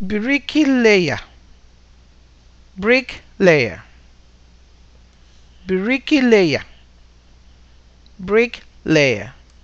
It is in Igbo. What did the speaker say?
bricky layer Brik leya.